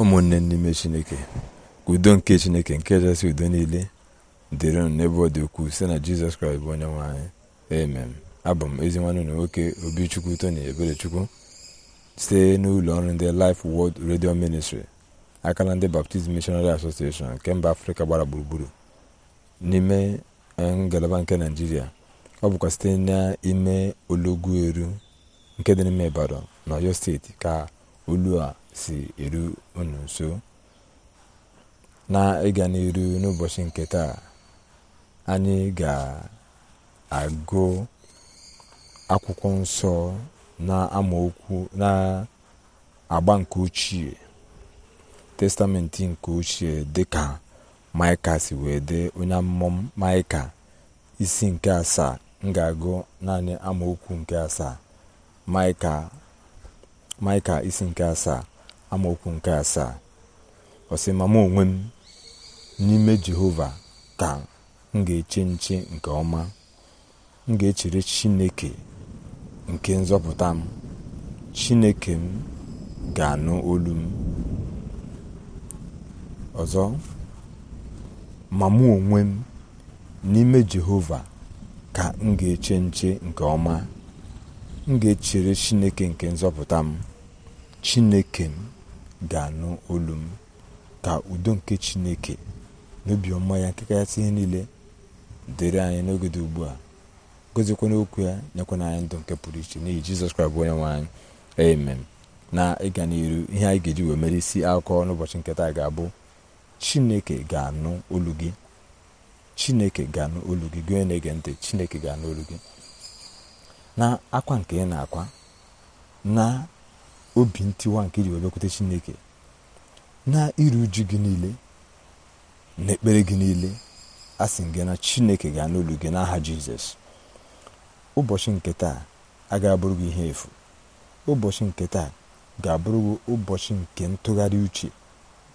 ụmụnne n'ime chineke udo nke chineke nke kachasị udo niile dịrị unu n'ebe ọ dị ukwuu site na jizọs kraịst bụ onye nwe anyị amen abụ m ezi nwanne na nwoke obichukwu tony eberechukwu site n'ụlọ ọrụ ndị Life World redio Ministry aka na ndị Baptist Missionary Association nke mba afrịka gbara gburugburu n'ime e, ngalaba nke naijiria ọ bụkwa site n'ime olọgwu eru nke dị n'ime Ibadan na Ọyọ steeti ka olu a si eru unu nso na ịga n'iru n'ụbọchị nke taa anyị ga-agụ akwụkwọ nsọ na amaokwu na agba nke ochie testamenti nke ochie dịka maịka si wee dị onye amụma maịka isi nke asaa m ga-agụ naanị amaokwu nke asaa maịka maịka isi nke asaa amaokwu nke asaa ọ sị mụ onwe m n'ime jehova ka m ga-eche nche nke ọma m ga-echere chineke nke nzọpụta m chineke m ga-anụ olu m ọzọ ma mụ onwe m n'ime jehova ka m ga-eche nche nke ọma m ga-echere chineke nke nzọpụta m chineke m ga-anụ olu m ka udo nke chineke na obiọma ya nke kachasị ihe niile dịrị anyị n'oge dị ugbu a gozikwana okwu ya nyekwana anyị ndụ nke pụrụ iche n'ihi jizọs kraịst bụ onye nwe anyị amen na ịga n'iru ihe anyị ga-eji wee mere isi akụkọ n'ụbọchị nketa ga-abụ chineke ga-anụ olu gị chineke ga-anụ olu gị gị onye na-ege ntị chineke ga-anụ olu gị na akwa nke ị na-akwa na obi ntiwa nke iji wee chineke na iru uju gị niile na ekpere gị niile a gị na chineke ga-anụ gị n'aha jizọs ụbọchị nke taa agaghị abụrụ gị ihe efu ụbọchị nke taa ga-abụrụ gị ụbọchị nke ntụgharị uche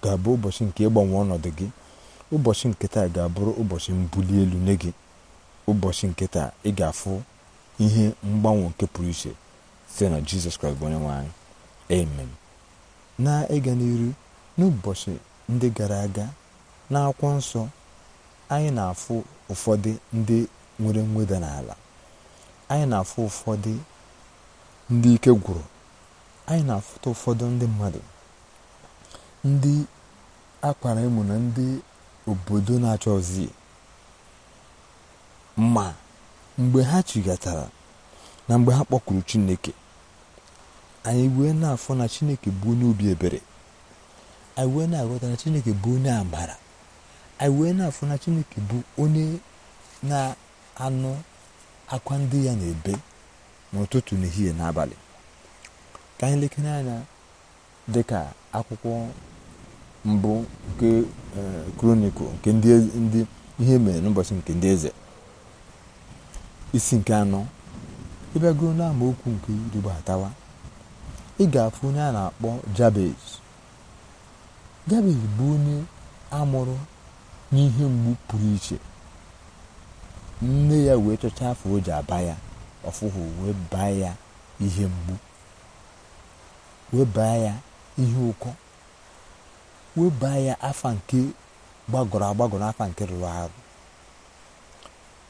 ga-abụ ụbọchị nke ịgbanwe ọnọdụ gị ụbọchị nke taa ga-abụrụ ụbọchị mbuli elu nye gị ụbọchị nke taa ị ga-afụ ihe mgbanwe nke pụrụ iche site na jizọs kraịst bụ onye nwe anyị amen na ịga n'iru n'ụbọchị ndị gara aga n'akwụkwọ nsọ anyị na-afụ ụfọdụ ndị nwere mweda n'ala anyị na-afụ ụfọdụ ndị ike gwụrụ anyị na-afụta ụfọdụ ndị mmadụ ndị akwara ịmụ na ndị obodo na achọ ozi ma mgbe ha chigatara na mgbe ha kpọkuru chineke anyị wee na-afọ na chineke bụ onye obi ebere anyị wee na-aghọta na chineke bụ onye amara anyị wee na-afọ na chineke bụ onye na-anụ akwa ndị ya na-ebe n'ụtụtụ n'ehihie n'abalị ka anyị lekere anya dị ka akwụkwọ mbụ nke eh, kronikụl nke e, ndị ihe mere n'ụbọchị nke ndị eze isi nke anọ ịbịago n'amaokwu nke iribo atawa ị ga-afụ onye a na-akpọ jabez jabez bụ onye amụrụ n'ihe mgbu pụrụ iche nne ya wee chọcha afọ o ji aba ya ọfụhụ wee baa ya ihe mgbu wee baa ya ihe ụkọ wee baa ya afa nke gbagọrọ agbagọrọ afa nke rụrụ arụ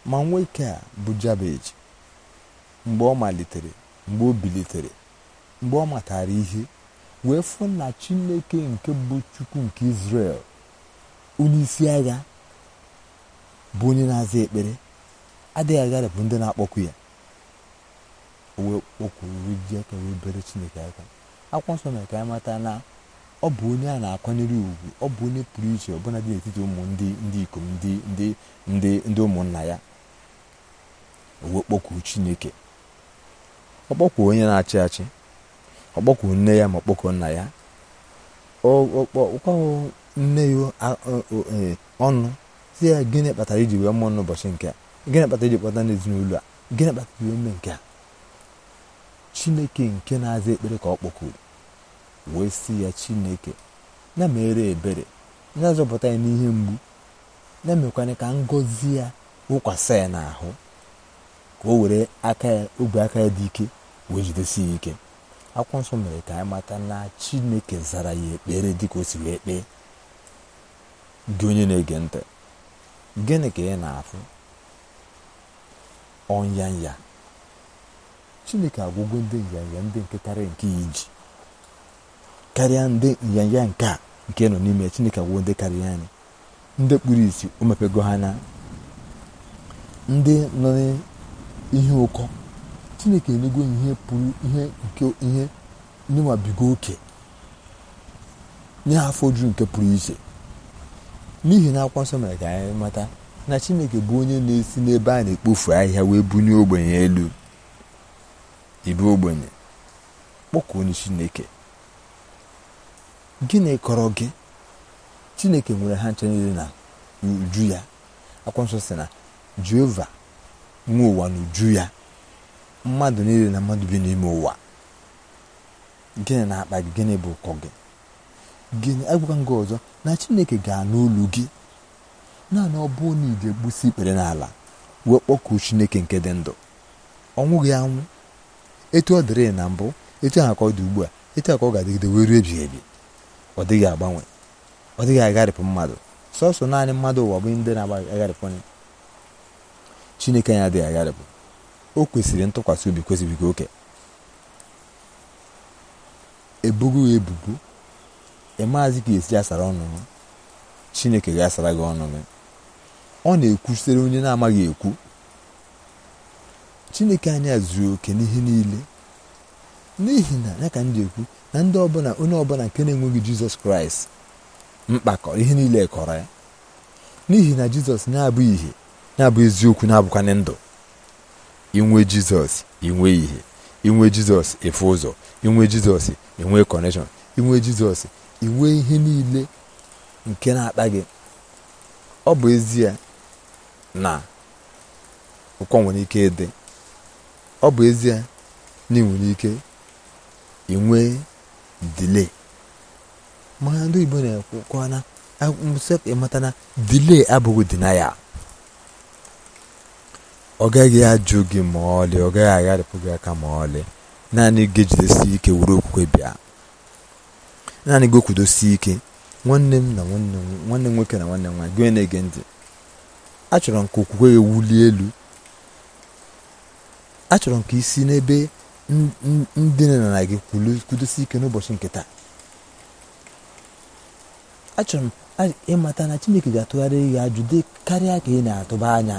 ma nwoke a bụ jabeji mgbe ọ malitere mgbe o bilitere mgbe ọ matara ihe wee fụ na chineke nke bụ chukwu nke israel onye isi agha bụ onye na-aza ekpere adịghị bụ ndị na-akpọkwu ya wee kpọkwuru ji aka wee bere chineke aka akwụkwọ nsọ mere ka anyị mata na ọ bụ onye a na-akwanyere ugwu ọ bụ onye pụrụ iche ọbụla dị n'etiti ụmụ ndị ndị ikom ndị ndị ndị ndị ụmụnna ya wee kpọkwuru chineke ọ kpọkwuru onye na-achị achị ọ nne ya ma ọ nna ya ọkpọkpọọ nne ya e, ọnụ si ya gịnị kpatara iji wee mụọ n'ụbọchị nke a gịnị kpatara iji kpọta n'ezinụlọ a gịnị kpatara wee mee nke a chineke nke na-aza ekpere ka ọ kpọkuru wee si ya chineke na mere ebere na-azọpụta ya n'ihe mgbu na-emekwanye ka ngọzi ya wụkwasị ya n'ahụ ka o were aka ya ogwe aka ya dị ike wee jidesi ya ike akwụkwọ nsọ mere ka anyị mata na chineke zara ya ekpere dịka o si wee kpee gị onye na-ege ntị gịnị ka ị na-afụ ọnyanya chineke agwụgo ndị nyanya ndị nke karịa nke iji karịa ndị nyanya nke a nke nọ n'ime chineke agwụ ndị karịa anyị ndị kpuru isi o mepego ha na ndị nọ n'ihe ụkọ chineke enyego ihe pụrụ ihe nke ihe oke nye afọ ju nke pụrụ iche n'ihi na akwụkwọ nsọ mere ka anyị mata na chineke bụ onye na-esi n'ebe a na-ekpofu ahịhịa wee bunye ogbenye elu ibu ogbenye kpọkụ onye chineke gịnị kọrọ gị chineke nwere ha nche niile na uju ya akwụkwọ nsọ si na jehova nwe ụwa n'uju ya mmadụ niile na mmadụ bi n'ime ụwa gịnị na-akpa gị gịnị bụ ụkọ gị gịnị agwụka gị ọzọ na chineke ga-anụ ụlọ gị naanị ọ bụ na ije gbusi ikpere n'ala wee kpọkuo chineke nke dị ndụ ọnwụ gị anwụ etu ọ dịrị na mbụ etu ahụ ka ọ dị ugbu a etu ahụ ka ọ ga-adịgide wee ruo ebighị ebi ọ dịghị agbanwe ọ dịghị agharịpụ mmadụ sọsọ naanị mmadụ ụwa bụ ndị na-agba agharịpụ chineke anyị adịghị agharịpụ o kwesịrị ntụkwasị obi kwesịbigo oke ebugo ebubo ịmaazị e ka esi asara ọnụ chineke ga-asara gị ọnụ gị ọ na-ekwusere onye na-amaghị ekwu chineke anyị zuru oke n'ihe niile n'ihi na ya ka m ji ekwu na ndị ọbụla onye ọbụla nke na-enweghị jizọs kraịst mkpakọrọ ihe niile kọrọ ya n'ihi na jizọs na-abụ ihe na-abụ eziokwu na-abụkwanye ndụ inwe jizọs inwe ihe inwe jizọs efu ụzọ inwe jizọs inwe kọneshọn inwe jizọs inwe ihe niile nke na-akpa gị ọ bụ ezie na ụkọ nwere ike ịdị ọ bụ ezie na ị nwere ike inwe dile mana ndị Igbo na a ịmata na dile abụghị ya ọ gaghị ajụ gị ma ọlị ọ gaghị agharịpụ gị aka ma ọlị naanị gị jidesi ike were okwukwe bịa naanị gị okwudosi ike nwanne m na nwanne m nwanne nwoke na nwanne m nwaanyị gị na-ege ntị achọrọ m ka okwukwe gị wulie elu achọrọ m ka isi n'ebe ndị nọ na gị kwudosi ike n'ụbọchị nke taa achọrọ m ịmata na Chineke ga-atụgharị gị ajụ dị karịa ka ị na-atụba anya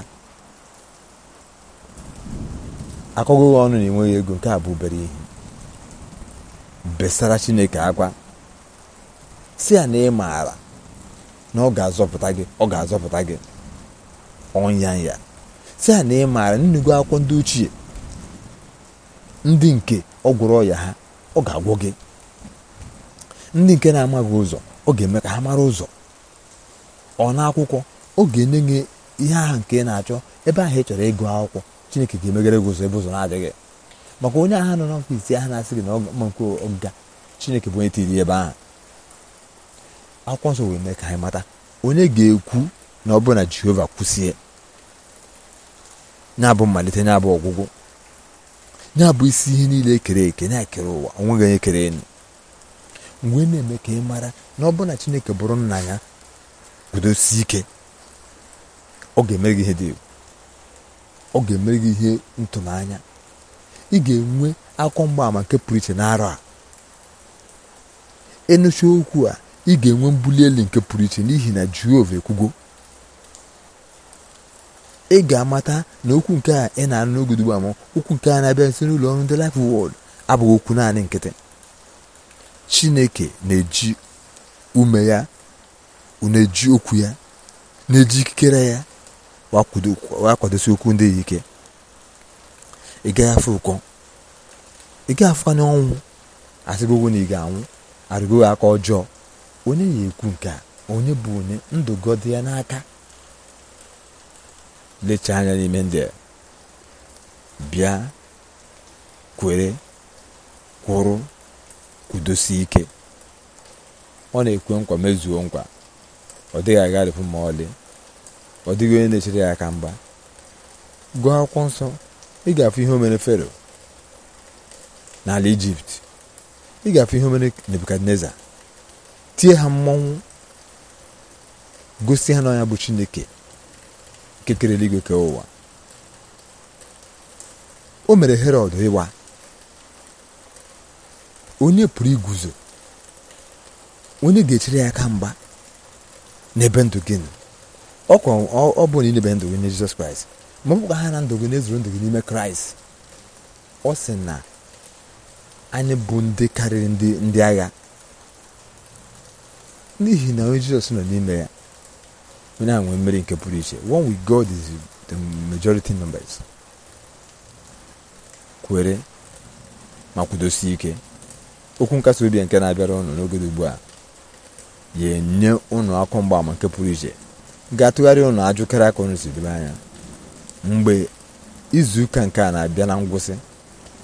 akụgụghị ọnụ na-enweghị ego nke a bụ obere ihe besara chineke akwa si ya na ị maara na ọ ga-azọpụta gị ọ ga-azọpụta gị ọnya ya si ya na ị maara nnugo akwụkwọ ndị ochie ndị nke ọ gwụrụ ọya ha ọ ga agwụ gị ndị nke na-amaghị ụzọ ọ ga-eme ka ha mara ụzọ ọ na akwụkwọ ọ ga-enye ihe ahụ nke ị na-achọ ebe ahụ ị chọrọ ịgụ akwụkwọ chineke ga-emegara gị ụzọ ebe ụzọ na-adịghị maka onye agha nọ n'ọkụ isi na-asị gị na ọma nke ọga chineke bụ onye tiri ebe ahụ akwụkwọ nsọ wee mee ka anyị mata onye ga-ekwu na ọ bụrụ na jehova kwụsie ya bụ mmalite ya bụ ọgwụgwụ ya bụ isi ihe niile ekere eke na-ekere ụwa onweghị onye kere enu mgbe e na-eme ka ị mara na ọ bụrụ na chineke bụrụ nna ya gudosi ike ọ ga-emere gị ihe dị egwu ọ ga-emere gị ihe ntụnanya ị ga-enwe akọ mgbaama nke pụrụ iche n'arọ a enụcha okwu a ị ga-enwe mbuli elu nke pụrụ iche n'ihi na jehova ekwugo ị ga-amata na okwu nke a ị na-anụ n'oge ugbu okwu nke a na-abịa nso n'ụlọ ọrụ ndị Life Word abụghị okwu naanị nkịtị chineke na-eji ume ya na-eji okwu ya na-eji ikikere ya wa kwadosi okwu ndị ike ị gaghị afọ ụkọ ị gaghị afụ anya ọnwụ asịgogo na ị ga-anwụ arịgoghị aka ọjọọ onye ya ekwu nke a onye bụ onye ndụ gọdị ya n'aka lecha anya n'ime ndị bịa kwere kwụrụ kwudosie ike ọ na-ekwe nkwa mezuo nkwa ọ dịghị agharịpụ ma ọlị ọ dịghị onye na-echere ya aka mgba gụọ akwụkwọ nsọ ị ga-afụ ihe omere fero n'ala ijipt ị ga-afụ ihe omere nebukadneza tie ha mmọnwụ gosi ha na bụ chineke kekere eluigwe ke ụwa o mere herod ịwa onye pụrụ iguzo onye ga-echere ya aka mgba n'ebe ndụ gịnị ọ bụ na idebe ndụ gị nye Jizọs Kraịst ma ọ bụkwa ha na ndụ gị na-ezuru ndụ gị n'ime Kraịst ọ sị na anyị bụ ndị karịrị ndị ndị agha n'ihi na onye Jizọs nọ n'ime ya onye ahụ nwee mmeri nke pụrụ iche one with God is the majority numbers kwere ma kwudosie ike okwu nkasi obi nke na-abịara ụnụ n'oge ugbu a ga enye ụnụ akọ mgbaama nke pụrụ iche ga atụgharị ụnụ ajụkere aka unu si debe anya mgbe izuụka nke a na-abịa na ngwụsị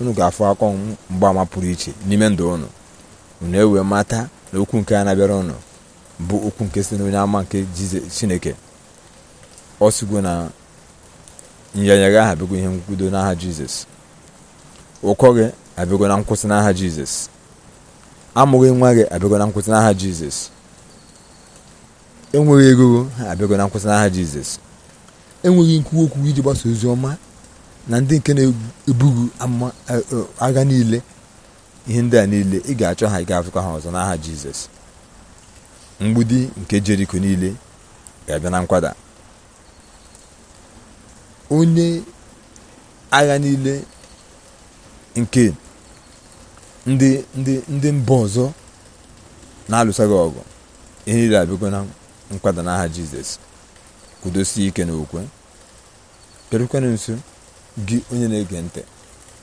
unu ga-afụ akọ mgbaama pụrụ iche n'ime ndụ ụnụ unu ewee mata na okwu nke a na-abịara unu bụ okwu nke si n'onye ama nke chineke ọ sigo na nyanya gị aha abịago ihe nkwudo n'aha jizọs ụkọ gị abịago na nkwụsị n'aha jizọs amụghị nwa gị abịgo na nkwụsị n'aha jizọs enweghị ego ha abịago na nkwụsị n'aha jizọs enweghị nkwuwa okwu iji gbasa ozi ọma na ndị nke na-ebughị e, e, agha niile ihe ndị a niile ị ga-achọ ha ị ga-afụkwa ha ọzọ n'aha jizọs mgbudi nke jeriko niile ga-abịa na nkwada onye agha niile nke ndị ndị ndị mba ọzọ na-alụsaghị ọgụ ihe niile abịago na nkwada n'aha jizọs kwudosie ike n'okwe bịarukwana nso gị onye na-ege ntị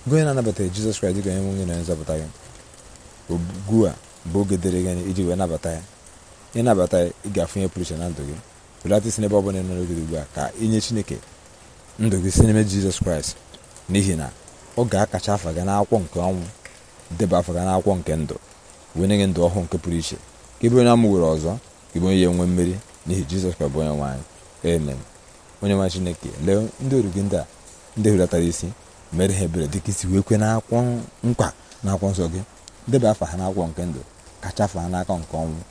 gị onye na-anabataghị jizọs kraịst dịka onye nwe onye na nzọpụta gị ogbu a bụ oge dịrị gị iji wee nabata ya ịnabata ya ị ga pụrụ iche na ndụ gị belata isi n'ebe ọ bụla nọ n'oge ugbu a ka inye chineke ndụ gị si n'ime jizọs kraịst n'ihi na ọ ga-akacha afa gị n'akwụkwọ nke ọnwụ deba afa gị n'akwụkwọ nke ndụ wee nye gị ndụ ọhụụ nke pụrụ iche ka ebe onye amụ were ọzọ ị bụ onye ya nwe mmeri n'ihi jizọs ka bụ onye nwaanyị amen onye nwa chineke lee ndị oru gị ndị a ndị hulatara isi mere ha ebere dịka isi wee kwe n'akwụkwọ nkwa na akwụkwọ nsọ gị debe afa ha n'akwụkwọ nke ndụ kacha afa ha n'aka nke ọnwụ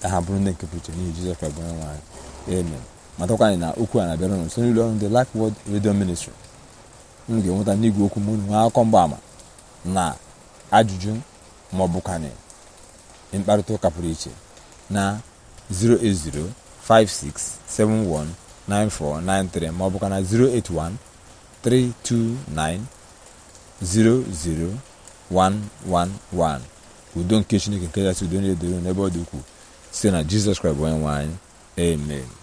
ka ha bụrụ ndị nke pụrụ iche n'ihi jizọs ka bụ onye nwaanyị amen matakwa anyị na okwu a na-abịara ụnụ nso n'ụlọ ọrụ ndị lak wod redio Ministry unu ga-enweta n'igwe okwu m unu nwee akọ mgbaama na ajụjụ ma ọ mkparịta ụka pụrụ iche na 08056719493 ma ọ bụkwa na 08132900111 udo nke Chineke nke kachasị udo na doro n'ebe ọ dị ukwuu site na Jizọs Kraịst bụ onye nwanyị amen